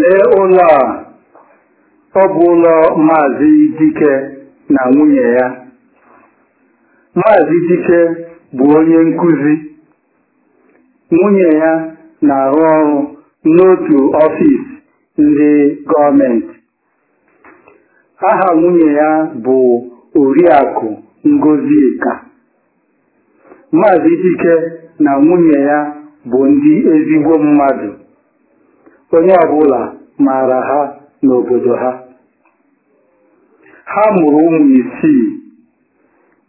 lee ụlọ a ọ bụ ụlọ maazị dike na nwunye ya maazị dike bụ onye nkuzi. nwunye ya na-arụ ọrụ n'otu ọfis ndị gọọmenti aha nwunye ya bụ oriakụ Ngozie. ka maazị dike na nwunye ya bụ ndị ezigbo mmadụ onye ọbụla maara ha n'obodo ha ha mụrụ ụmụ isii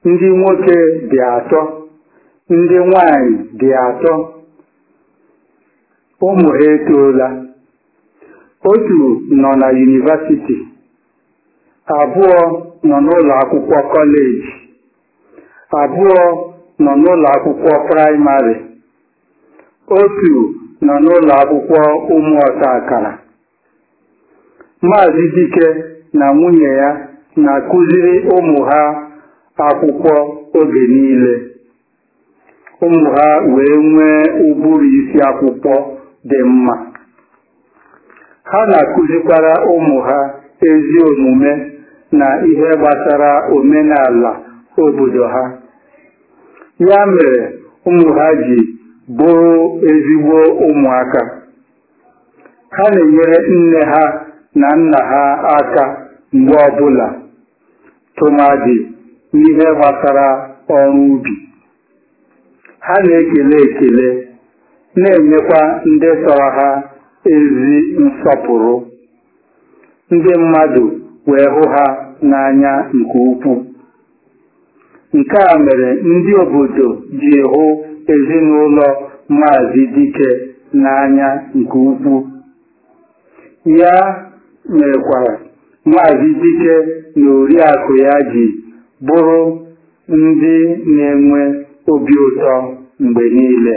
ndị nwoke dị atọ ndị nwanyị dị atọ ụmụ ha etoola otu nọ na yunivasiti abụọ nọ n'ụlọ akwụkwọ kọleji abụọ nọ n'ụlọ akwụkwọ praịmarị otu nọ n'ụlọ akwụkwọ ụmụ ọta akara maazị dike na nwunye ya na-akụziri ụmụ ha akwụkwọ oge niile ụmụ ha wee nwee ụbụrụ isi akwụkwọ dị mma ha na-akụzikwara ụmụ ha ezi omume na ihe gbasara omenala obodo ha ya mere ụmụ ha ji bụ ezigbo ụmụaka ha na-enyere nne ha na nna ha aka mgbe ọbụla tụmadị n'ihe gbasara ọrụ ubi ha na-ekele ekele na-enyekwa ndị tọrọ ha ezi nsọpụrụ ndị mmadụ wee hụ ha n'anya nke ukwuu nke a mere ndị obodo ji hụ ezinụlọ maazị dike n'anya nke ukwuu ya mekwara maazị dike na oriakụ ya ji bụrụ ndị na-enwe obi ụtọ mgbe niile